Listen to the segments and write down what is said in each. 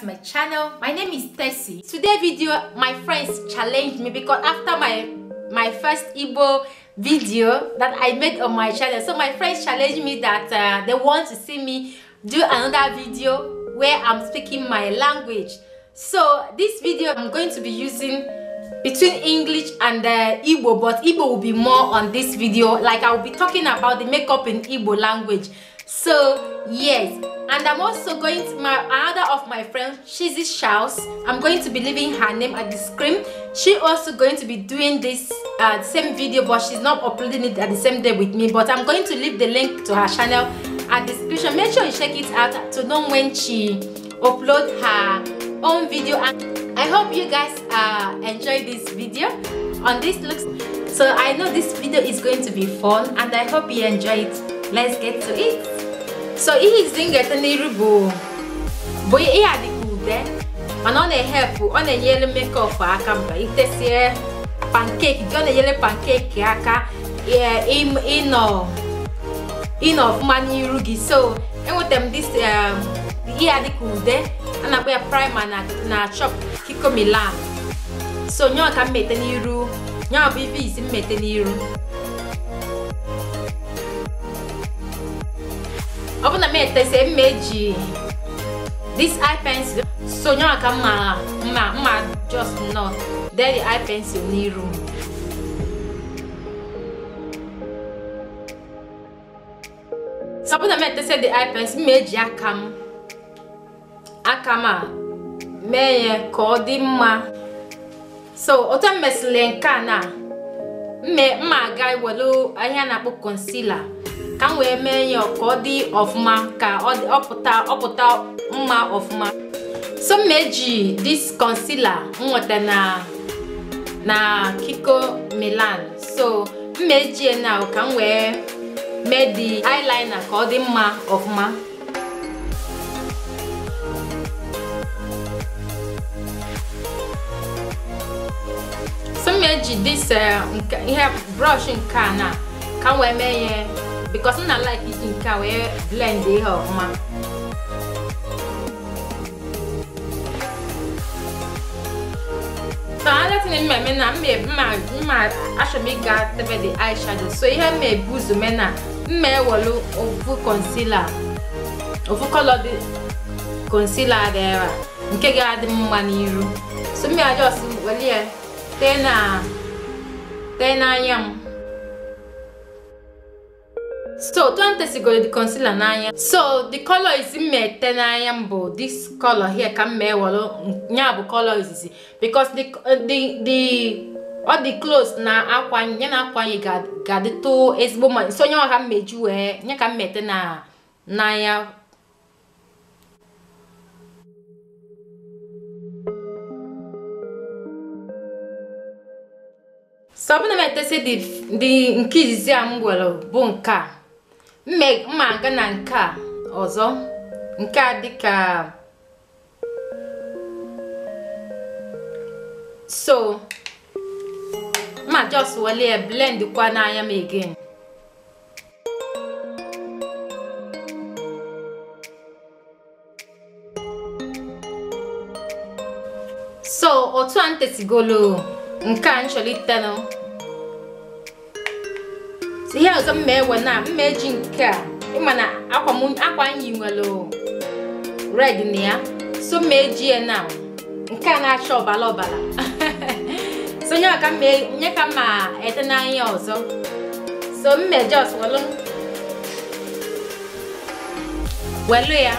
to my channel my name is Tessie today video my friends challenged me because after my my first Igbo video that I made on my channel so my friends challenged me that uh, they want to see me do another video where I'm speaking my language so this video I'm going to be using between English and uh, Igbo but Igbo will be more on this video like I will be talking about the makeup in Igbo language so yes and i'm also going to my other of my friends Shizzy shouse i'm going to be leaving her name at the screen she also going to be doing this uh, same video but she's not uploading it at the same day with me but i'm going to leave the link to her channel at the description make sure you check it out to know when she upload her own video and i hope you guys uh enjoy this video on this looks so i know this video is going to be fun and i hope you enjoy it let's get to it so ihe izi m ga-ete n'iru bụ bụ ihe adịka ude mana ọ na-ehepụ ọ na-enyere mekọp aka mba itesie pankeki ọ na-enyere pankeki aka eh, ịnọ ịnọ ọfụma n'iru gị so enwetara dis eh, ihe adịka ude a na ya praịma na chop kikomilan so nyọọ ka m n'iru nyọọ ibe izi m n'iru ọ bụ na m etese mma eji this eye pencil so nye mma mma mma just not dee the eye pencil n'iru na m etese the eye pencil m eji aka m aka m a mee ya ka ọ dị mma so otu m mesịrị nke a na mma aga welu ahịa na-akpọ concealer ka m wee mee ya ka ọ dị ọfụma ka ọ ọpụta mma ọfụma so m eji dis concealer m nweta na na Kiko Milan so eji ejie na ka m wee mee di eyeliner ka ọ dị mma ọfụma so m eji this eh, ihe brush nke a na ka m wee mee ya because m na like it nke a wey blend ihe ọfụma aletini mma eme na mma achọrọ ịga tebe the eye shadow so ihe m ụzọ mee na ofu concealer ofu color dị concealer dị ah. nke ga-adị mma n'iru so mma just weli ya tee na tee n'anya m so 20sigoro di concealer n'anya so di color izi m ete n'anya m bụ this color here ka m mee were ya bụ color izizi because di the di ọ dị close na akwa ya na akwa anyị ga-adịtụ ezigbo mma so nye ọha mmeju wee nye ka m e, mete na n'anya so ọbụna m etesi dị nke izizi a m gwere bụ nke a mma aga na nke a ọzọ nke a dịka so ma just wale blend kwa n'anya m again so otu a ntetigolo nke a nchọlitanụ ihe ọzọ mma ewe na mma eji nke a ịma na akwa m yi nwere red na ya so mma eji ya na nke a na-acha ọbara ọbara so nye ka mma ete n'anya ọzọ so mma just welu ya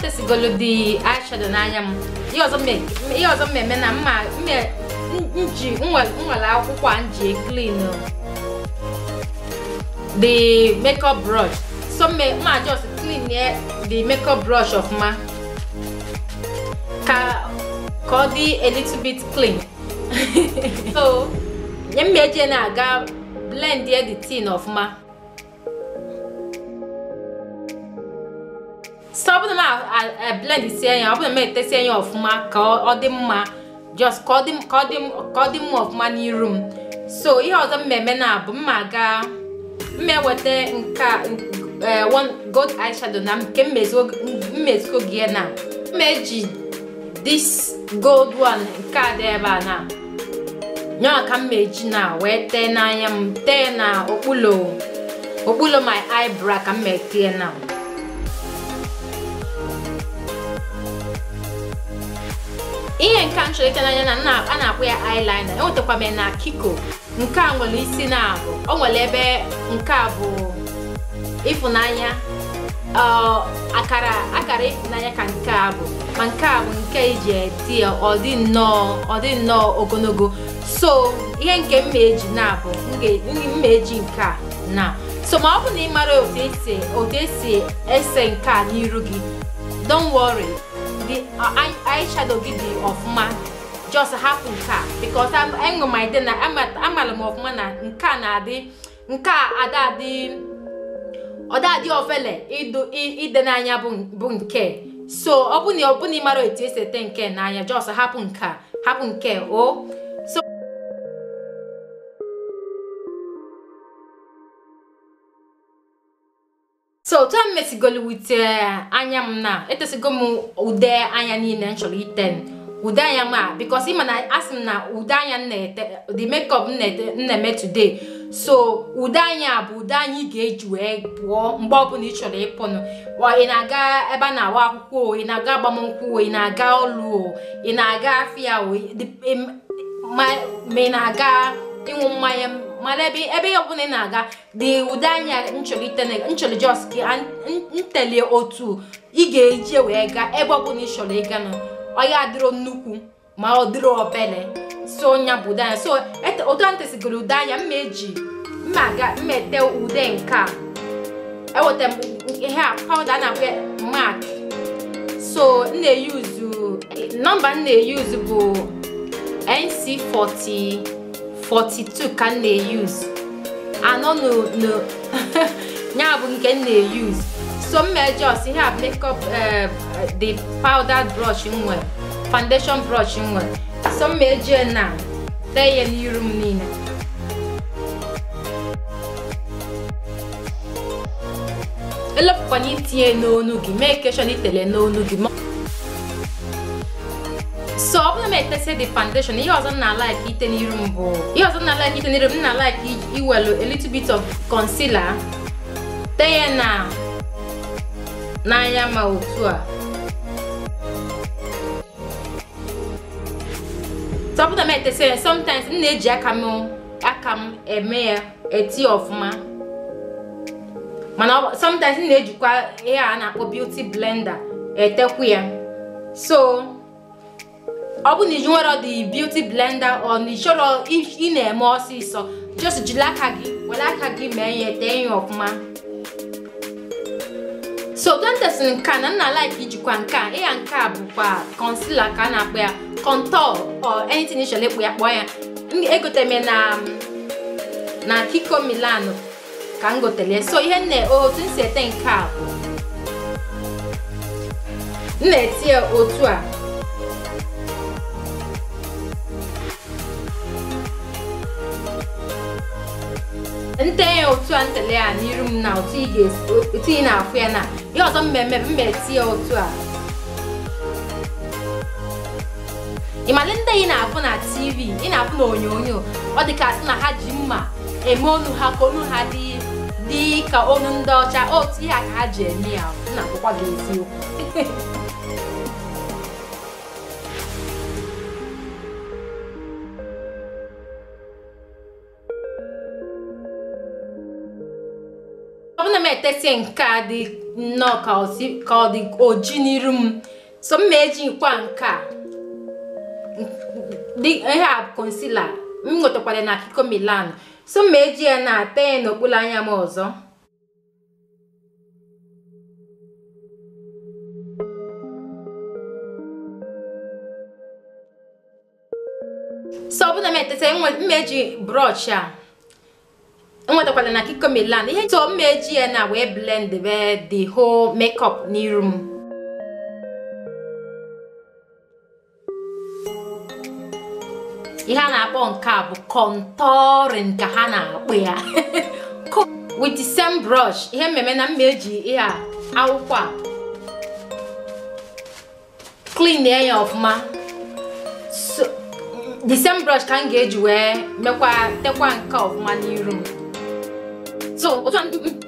ka esigolodi eyeshadow n'anya m ihe ọzọ mmemme na mma nji nwere akwụkwọ a nji clean the makeup brush so mma just clean the makeup brush of ọfụma ka ọ dị a little bit clean so nye mma eji na-aga blend the tin ọfụma ọ bụrụ na m a blend ọ ya ọbụna m etesie ya ọfụma ka ọ dị mma just ka ọ dị mma ọfụma n'iru m so ihe ọzọ mmeme eme na abụ mma aga mma eweta nke eh, gold eyeshadow na nke mmezigo gị na mmeji eji this gold one nke a dị ebe a na nyaa ka m eji na wee tee n'anya m tee na okpulo okpulo my eyebrow ka m tee na ihe nke a nchọrọ na a na-akpọ ya eyeliner enwetakwa m na kiko uh, nke a nwere isi na abụ o nwere ebe nke a bụ ịfụnanya akara akara ịfụnanya ka nke a bụ ma nke a bụ nke iji eti ọdị dị nnọọ ọ ogologo so ihe nke m eji na-abụ mma eji nke a na so ma ọ bụ na ị mara otu esi ese nke a n'iru gị don't worry gị uh, eyeshadow gị dị ọfụma just hapụ nke a because enwe m ide na amara m ọfụma na nke a na-adị nke a adadị ọdadị ofele ide n'anya bụ nke so ọ bụ na ọ bụ na ị mara etu esi ete na-anya just hapụ nke a hapụ nke o oh. so otu a m mesigolu wute eh, anya m na etesigo m ude anya niile m chọrọ ite ude anya m a because ịma na asị m na ude anya m na the makeup m na-eme today so ude anya bụ ude anya ị ga-eji wee pụọ mgbe ọbụla ị chọrọ ịpụnụ ị na-aga ebe a na-awa akwụkwọ ị na-aga agbamnkwụ ị na-aga ọlụ ị na-aga afịa o ma ị na-aga ịṅụ mmanya mara ebe ebe ọbụla ị na-aga dị ụdị anya nchọrọ jos ka ntele otu ị ga-eje wee gaa ebe ọbụla ị chọrọ ịga nọ ọya adịrọ nnukwu ma ọ dịrọ obere so nya bụ ụdị anya so otu anyị tesigoro ụdị anya mma eji mma aga mma ete ude nke a eweta m ihe a pawuda na-akpọ mak so m na-eyuzu nọmba m na-eyuzu bụ nc40 42 ka m na-eyuzu anọ ya bụ nke m na-eyuzu so m mejọs ihe a makeup eh, the powder brush m foundation brush m nwere so m mejie na tee ya n'iru m niile elopụkwana itinye n'onu gị mee keshọn itele n'onu gị na-etesi the foundation ihe ọzọ na like ite n'iru m bụ ihe ọzọ na like ite n'iru m na like iwelu a little bit of concealer tee na n'anya ma otu a tọpụta m etesi ya sometimes m na-eji aka m aka m eme ya eti ọfụma mana sometimes m na-ejikwa ihe a na-akpọ beauty blender etekwu ya so ọ bụ na iji ọ the beauty blender ọ na ịchọrọ ị na-eme ọsịsọ just jiri aka gị were aka gị mee ihe tee ya ọfụma so dentist nka na nna like ijikwa nke a ịya nke a bụkwa concealer ka a na-akpọ ya contour or anything ịchọrọ ịkpụ ya kpọọ ya egotere na na Kiko milan ka m gotere so ihe nne otu m si ete nke a bụ m na-eti ya otu a ntenye otu a ntele ya n'iru m na otu ị na-afụ ya na ihe ọzọ mmemme mmeti ya otu a ịmalị ndị ị na-afụ na tv ị na-afụ na onyonyo ọ dị ka na ha ji mma eme onu ha ka onu ha dị dị ka onu ndị ọcha otu ihe a ka ha ji eme ya na akwụkwọ gị eziokwu etesie nke a dị nnọọ ka ọ dị oji n'iru m so mma eji nkwa nke a ihe a konsila m nwetakwara na akụkọ milan so mma eji ya na-ata ya n'okpuru anya m ọzọ so ọ bụla m etesa mma eji brọsh a enwetakwala na kiko land ihe so mma eji ya na wee blend the whole makeup n'iru m ihe a na-akpọ nke a bụ contouring ka ha na akpụ ya with the same brush ihe mmemme na mma eji ihe akwụkwọ a clean ya ọfụma the same brush ka m ga-eji wee mekwa tekwa nke ọfụma n'iru m so otu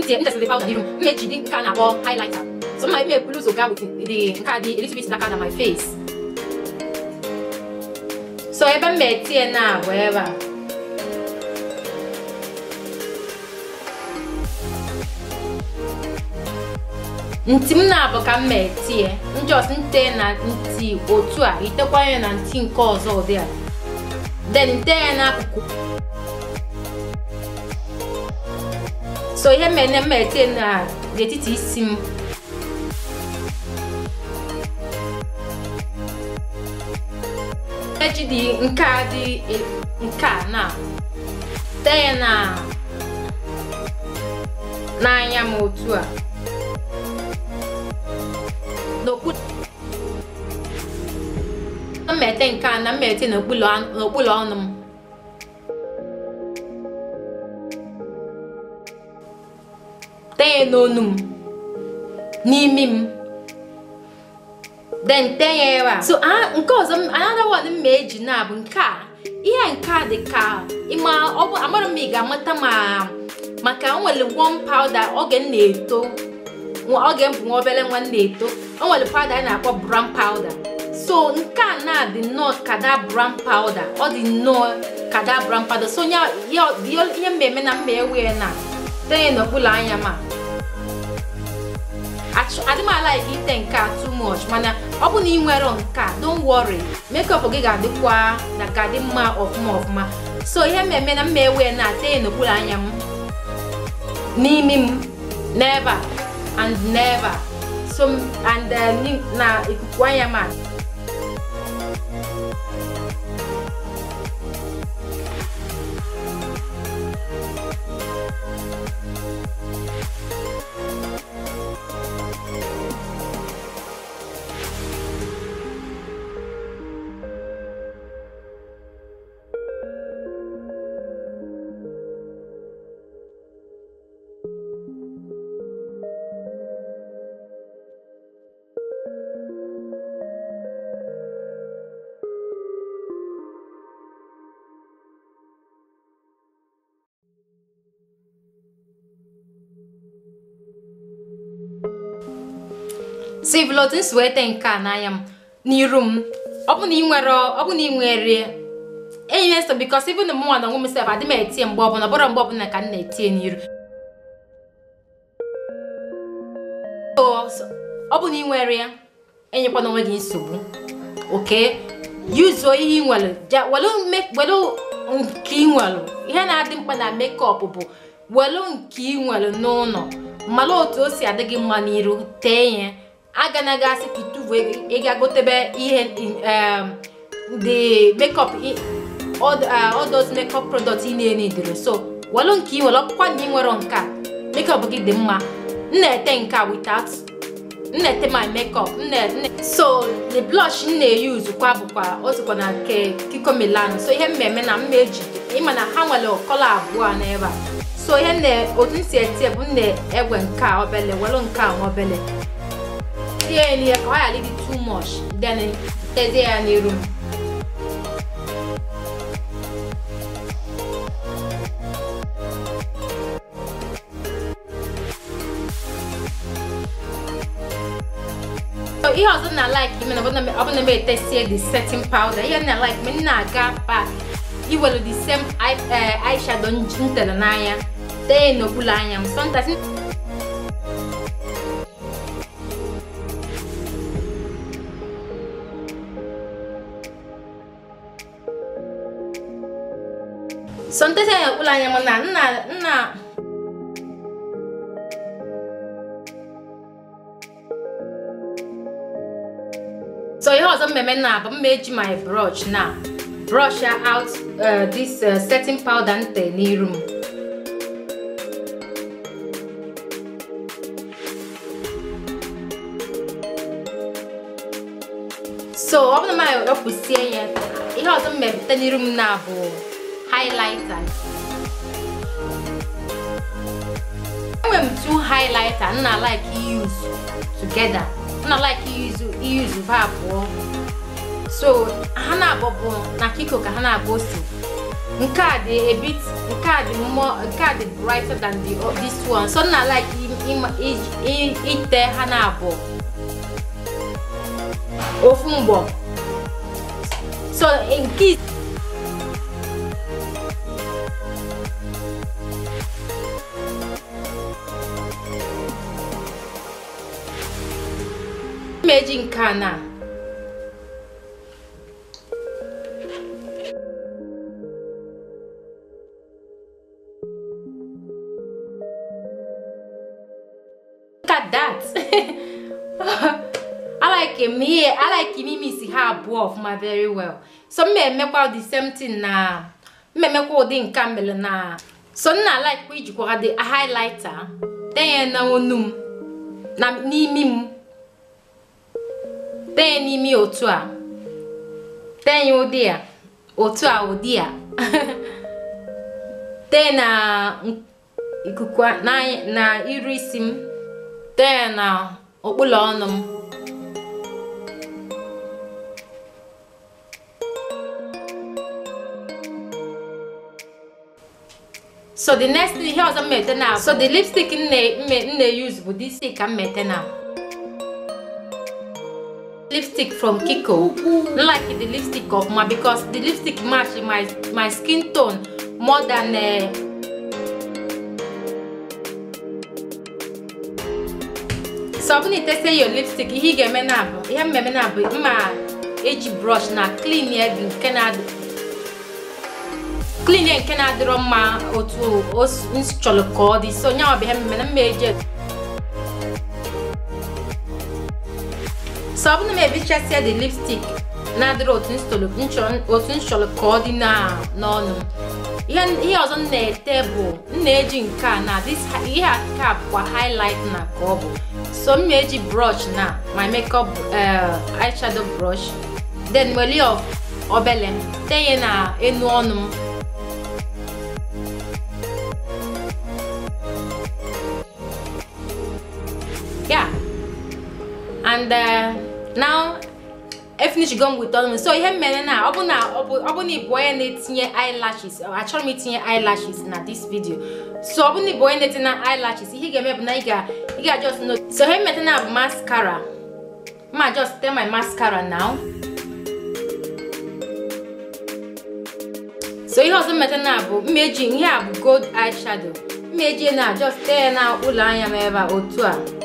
ntị ntesịrị pawụda n'iru m eji dị nke a na-akpọ highlighter so mma ime ebulu zoga with the nke a dị a little bit darker than my face so ebe m etinye na bụ ebe a ntị m na-abụ ka m etinye njọs nte na nti otu a itekwa ya na nti nke ọzọ ụdị a den nte ya n'akụkụ so ihe mere m ete na n'etiti isi m eji dị nke a dị e, nke a na tee na n'anya m otu a n'okpuru mmete nke a na mmete n'okpuru ọnụ m tee ya then tee ya ebe so nke ọzọ another one m ma eji na bụ nke a ihe nke a dị ka ịma ọ bụ amara m ị ga-amata ma maka o nwere warm powder oge m na-eto oge m bụ nwa obere nwa m na-eto o nwere powder a na-akpọ brown powder so nke a na dị nnọọ kada brown powder ọ dị nnọọ kada brown powder so ya ihe mmemme na mma ewe na tee n'okpuru anya ma adị m alaiki ite nke a too much mana ọ bụ na ị nwere nke a don't worry up gị ga-adịkwa na ka dị mma ọfụma ọfụma so ihe mmemme na mma ewe na-ata ya anya m n'imi m neva and neva so and uh, na ikuku anya m sivlotis wee tee nke a n'anya m n'iru m ọbụna ị nwere ọbụna ị nwere enyi na-eso bikos even na mụnwa na onwe m sef adị m etie mgbe ọbụla ọbụrụ mgbe ọbụla ka m na-etie n'iru ọ bụ na ị nwere ya e enyekwana onwe gị nsogbu oke yuzuo ihe ị nwere welu nke ị nwere ihe na-adị mkpa na mekọp bụ welu nke ị nwere n'ụlọ mara otu o si adị gị mma n'iru tee ya aganaghị asị ka bụ ịga gotebe ihe dị um, makeup uh, all those makeup product ị na enye dịrị so welụ nke ị welụ ọkpụkwa na ị nwere nke a makeup gị dị mma m na-ete nke a without m na-ete my makeup so the blush m na-eyuzu kwa bụkwa otukwa na nke Kiko Milano so ihe mmemme na mma eji ịma na ha nwere kọlọ abụọ n'ebe a so ihe otu m si ete bụ m na-egwe nke a obele welụ nke a nwa obele tear in why I leave it too much then eh, there's air in the room so ihe ọzọ not like ime na ọ bụ na ebe etesie the setting powder ihe na like the same eh, eyeshadow m tere n'anya tee n'okpuru sometimes anya m na nna nna so ihe ọzọ mmemme na bụ mma eji my brush na brush out uh, this uh, setting powder nte n'iru m so ọ bụrụ na m wepụsie ya ihe ọzọ mmemme n'iru m na bụ highlighter even highlighter nna like use together nna like use use va oh. so ha na-abụbụ na kiko ka ha na a bit card more, card brighter than the oh, this one so nna like ite ha na-abụ ofu mgbọ so in nke imeji nke a na look I like him here ha abụọ ọfụma very well so m emekwa the same thing na m ụdị nke mere na so nna like ijikwa the highlighter denye na onu m n'imi m tee n'ime otu a tee ya ụdị a otu a ụdị a tee na ikuku na iru isi m tee na okpụlụ ọnụ m so the next ihe ọzọ m na so the lipstick m na-use bụ this stick ka m mete na lipstick from Kiko. Not like the lipstick of mine because the lipstick match my, my skin tone more than... Uh, so ọ bụrụ na your lipstick ihe ị ga-eme na abụ ihe mmemme na abụ brush na clean ya in na clean ya in na-adịrọ mma otu o chọrọ kodi so onye ọ bụ ihe mmemme na mma so ọ bụrụ na m ebichasia the lipstick na-adịrị otu m chọrọ ka ọ dị n'ọnụ ihe ọzọ na-ete bụ m na-eji nke a na ihe a ka highlight na ka ọ bụ so m eji brush na my makeup eh, eyeshadow brush then weli of obele m na enu ọnụ m ya and eh, now efinish go m with ọnụ so ihe mere na ọ bụ na ịbụ onye na-etinye eyelashes achọrọ m itinye eyelashes na this video so ọ bụ na ịbụ onye na-etinye na eyelashes ihe ị ga-eme bụ na ị ga just know so ihe mmeta na bụ mascara ma just tell my mascara now so ihe ọzọ mmeta na bụ mmeji ihe a bụ gold eyeshadow mmeji na just tee na ụlọ anya m ebe a otu a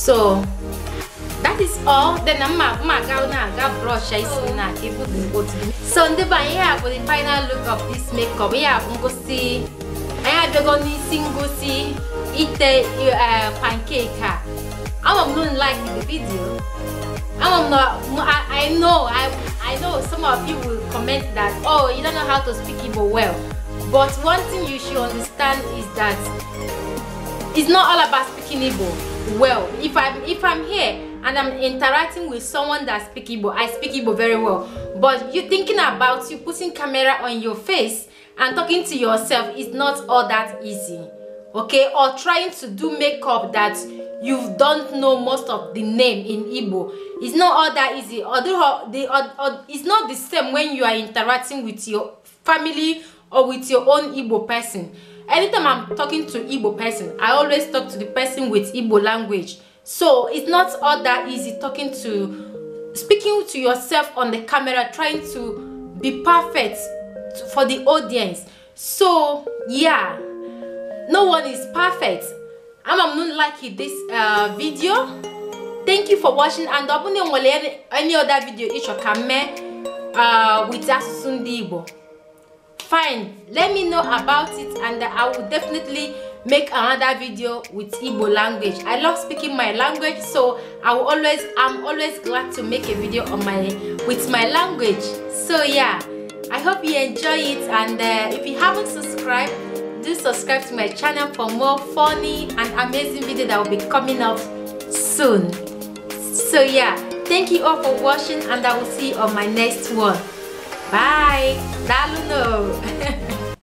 so that is all then mma mma ga na ga brush isi oh. na ibu the mkpụtụ so ndị be anyị a bụ the final look of this makeup ihe a bụ ngosi anyị abịago n'isi ngosi ite pancake a ama m don't like the video ama m na I, I know I, I know some of you will comment that oh you don't know how to speak Igbo well but one thing you should understand is that it's not all about speaking Igbo well if i'm if i'm here and i'm interacting with someone that speak igbo i speak igbo very well but you thinking about you putting camera on your face and talking to yourself is not all that easy okay or trying to do makeup that you don't know most of the name in igbo it's not all that easy although uh, the or, uh, or, uh, it's not the same when you are interacting with your family or with your own igbo person anytime i'm talking to igbo person i always talk to the person with igbo language so it's not all that easy talking to speaking to yourself on the camera trying to be perfect for the audience so yeah no one is perfect I'm m no like this uh, video thank you for watching and ọ bụrụ na enwere any other video ịchọ ka m uh, with asụsụ ndị igbo Fine. let me know about it and i will definitely make another video with Igbo language i love speaking my language so i will always i'm always glad to make a video on my with my language so yeah i hope you enjoy it and uh, if you haven't subscribed do subscribe to my channel for more funny and amazing video that will be coming up soon so yeah thank you all for watching and i will see you on my next one Bye! Talo no!